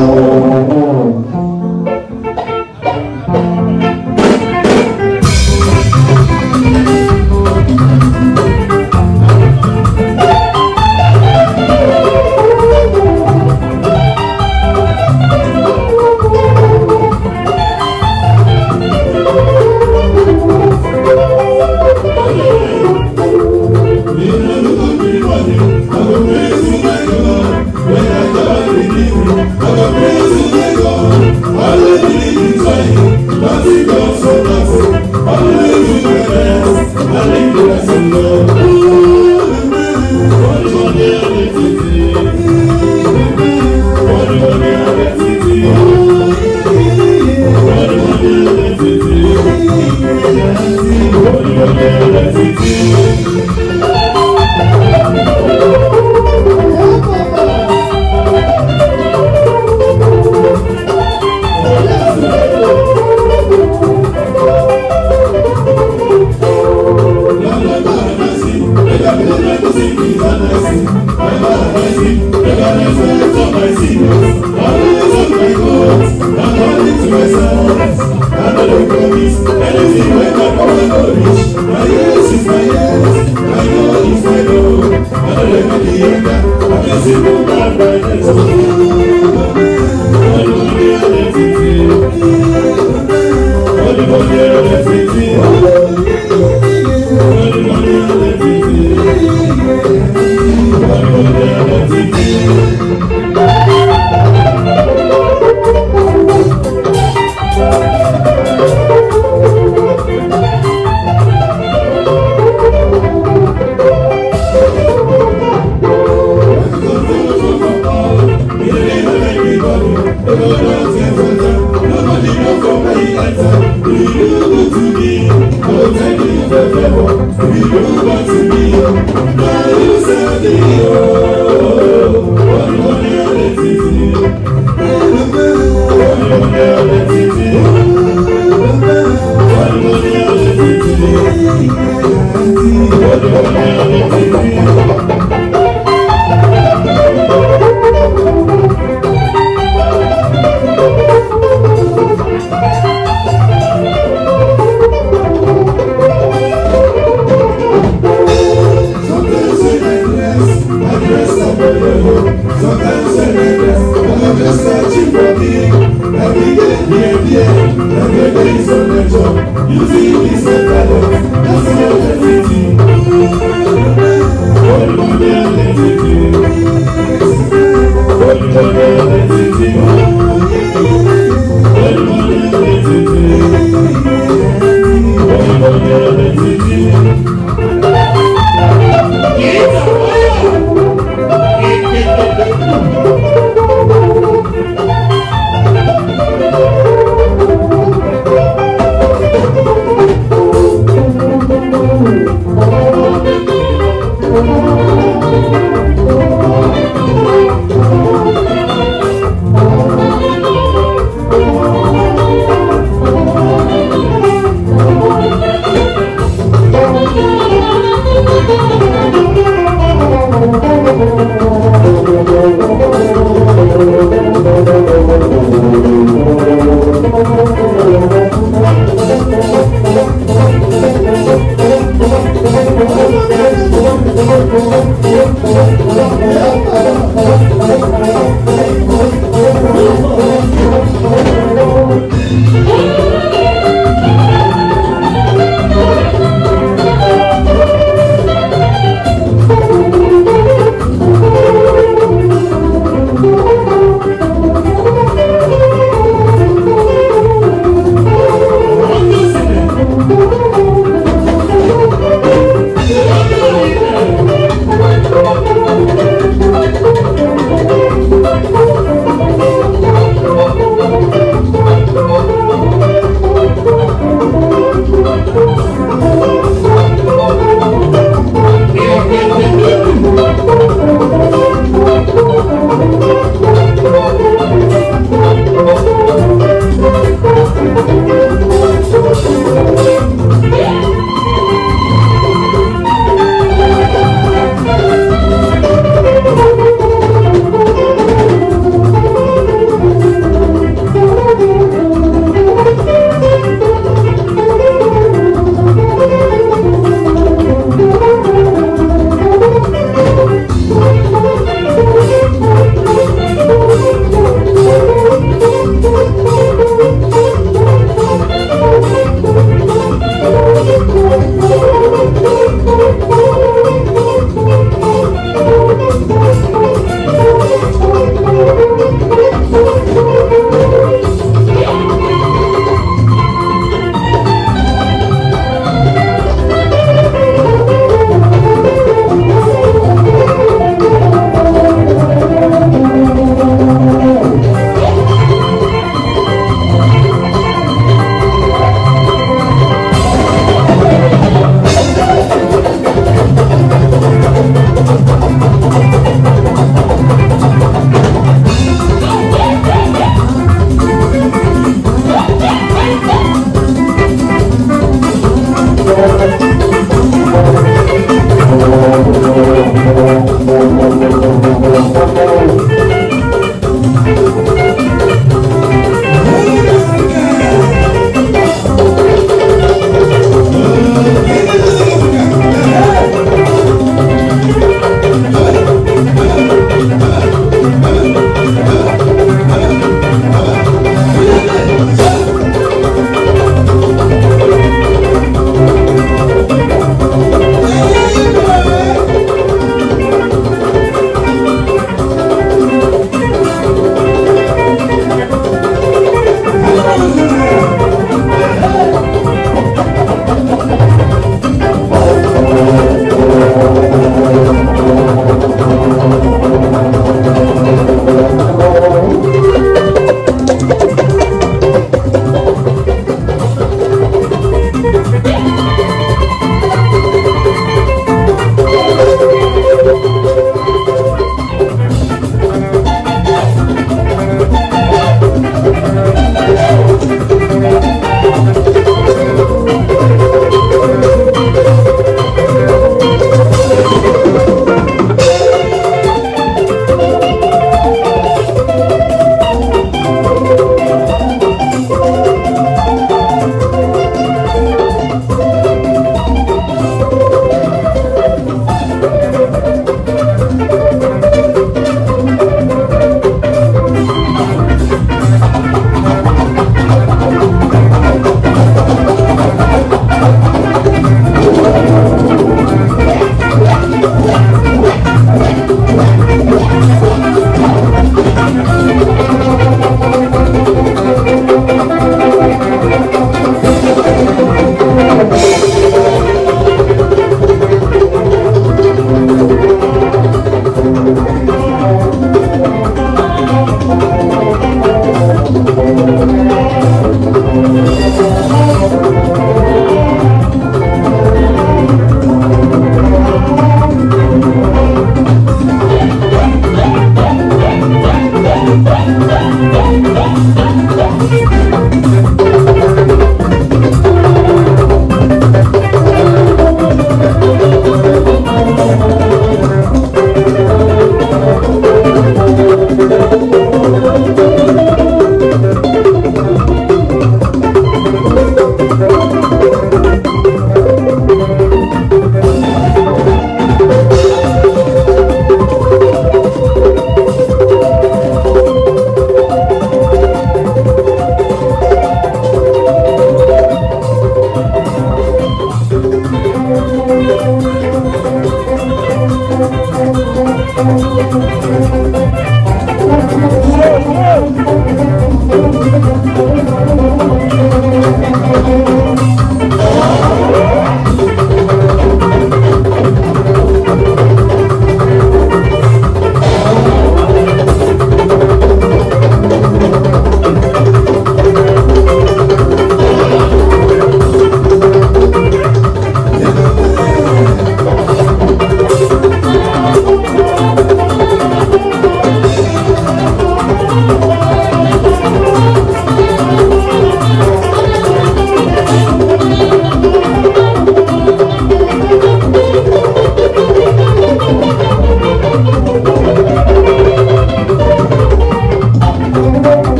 Oh, Ooh, Every day, yeah, every day is a pleasure. You see, it's a talent. That's your identity. Holy Monday identity. Holy the identity.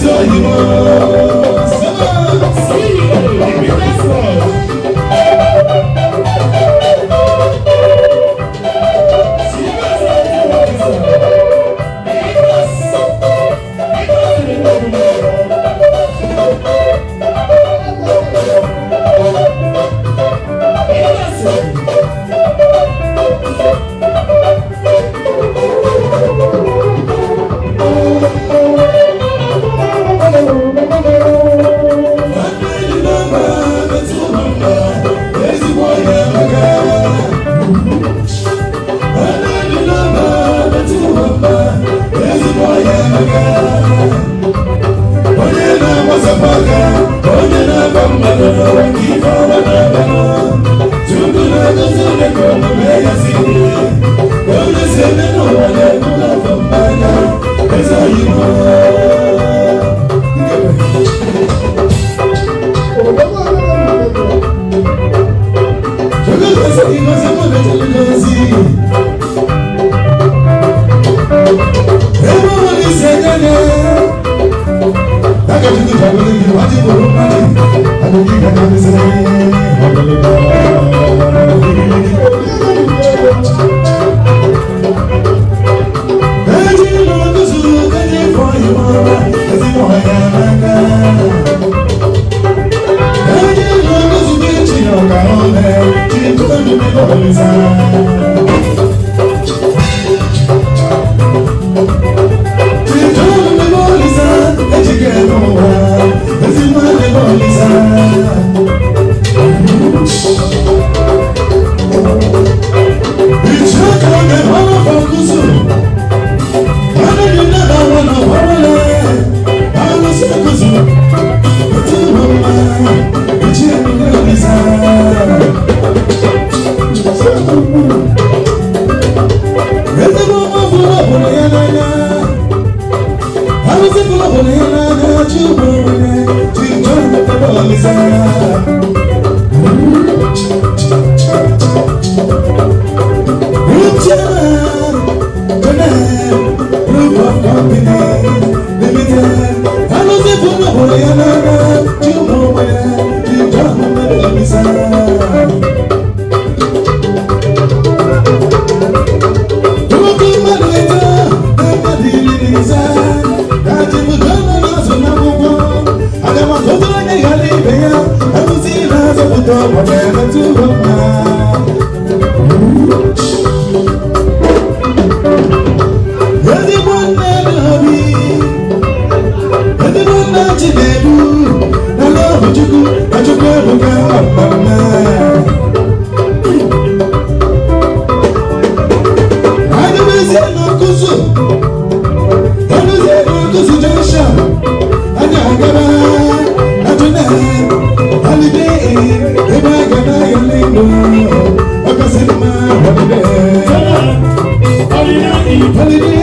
is all you know whatever I be, do, I love I just never got my I don't know, I don't know, I don't know, I don't know, I don't know, I don't know, Hallelujah.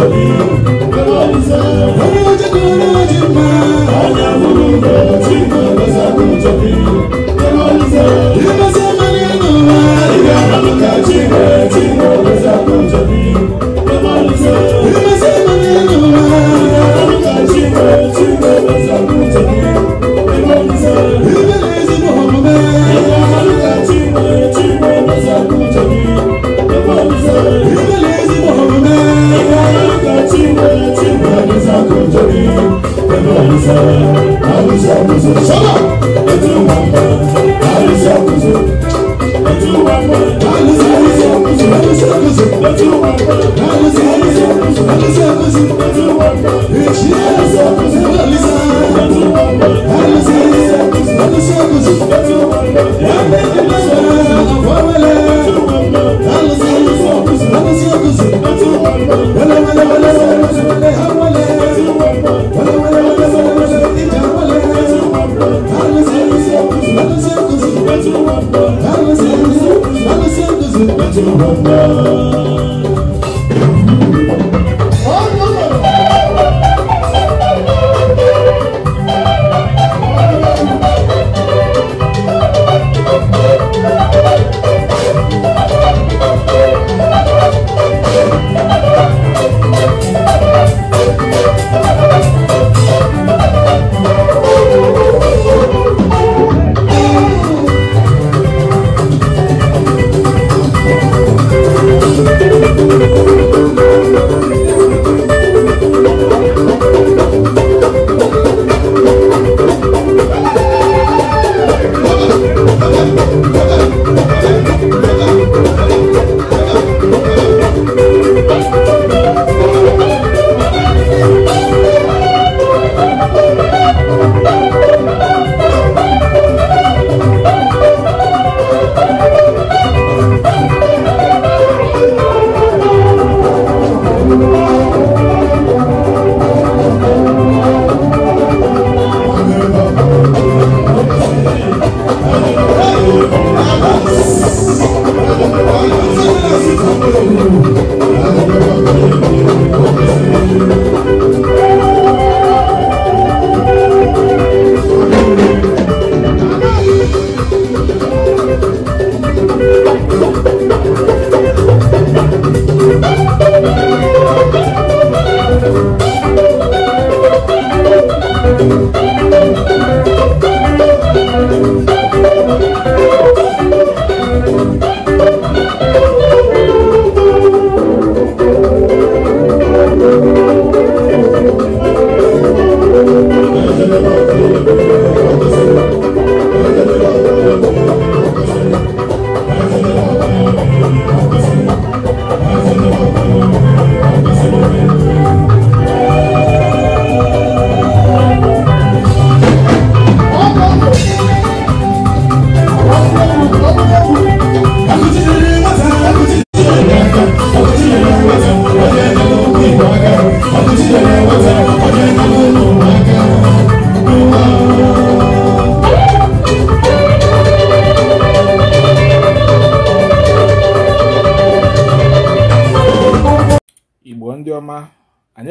ali.